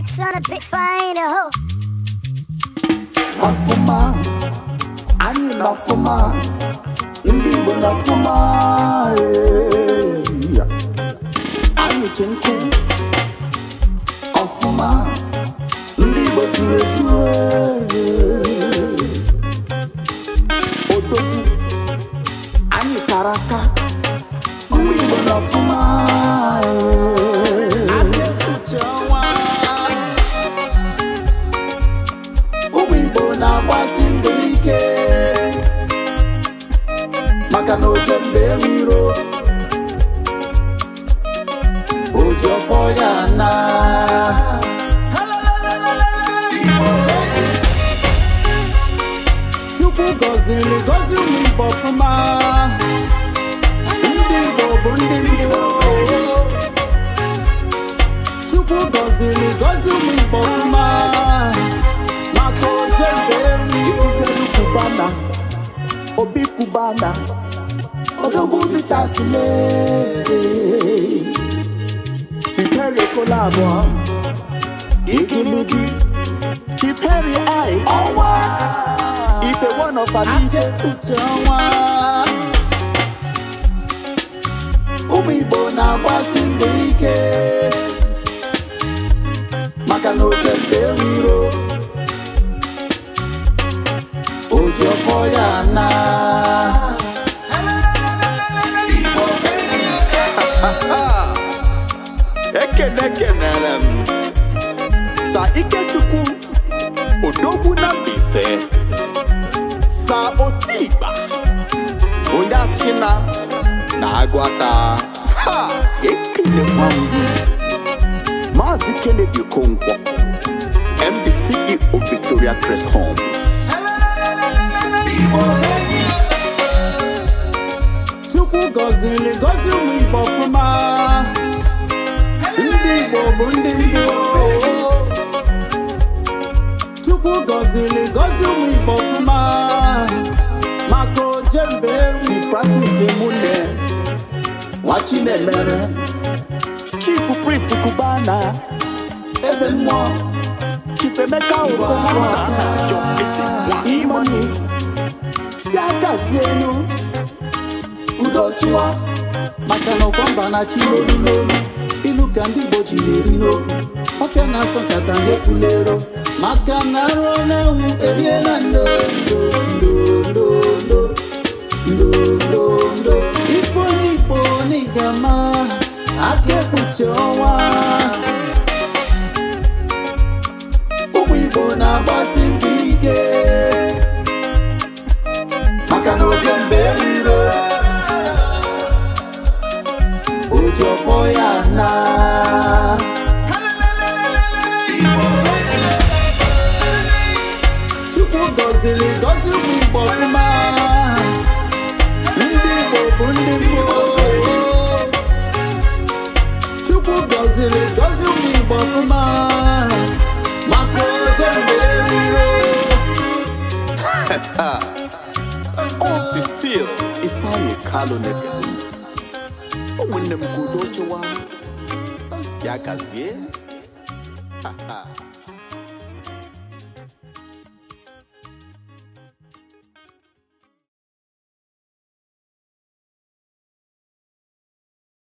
Racks on a big fine hoe. Lafuma, ani lafuma, indigo lafuma, ani kenku, afuma, indigo ture ture, odoku, ani karaka, indigo lafuma. Jofoyana. Chukwu gọziri You put Igbo ọfụma ndị Igbo bụ ndị Igbo Chukwu gọziri gọzi ụmụ Obi Kubana odogwu bitasile abụọ ikiliki chiperi ai ọnwa ife one of amike ọnwa ụmụ igbo na-agbasi mbọ ike maka na oke mgbe ewiro oji ọfọ ya naa ekene kenere m sa ikechukwu odogwu na Mbaise sa otikpa onye achịna na-agwata ha ekelekwa ndị Maazị Kennedy Okonkwo MD CEO Victoria Crest Homes Chukwu gọziri gọzi ụmụ Igbo ọfụma Chinemere Chief Prince kubana Eze mmụọ Chief Emeka Okonkwo Imoni Gagazie enu Udochiwa maka na ọkwa mba na chi n'olu n'olu ilu ka ndị Igbo ji na-eri n'okwu ọka na-asọ nkata na-epulero maka na arụ na-enwu eriela nri aka ekpuchi ọnwa ụmụ Igbo na-agbasi mbọ ike maka na oge mbe eriro oji ọfọ ya na Chukwu gọziri gọzi Le dozi ou mi bote man Ma kote men Ha ha O si siyo I pa ye kalon e pe do O wene mkou doche wan Ya gazye Ha ha